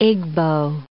Igbo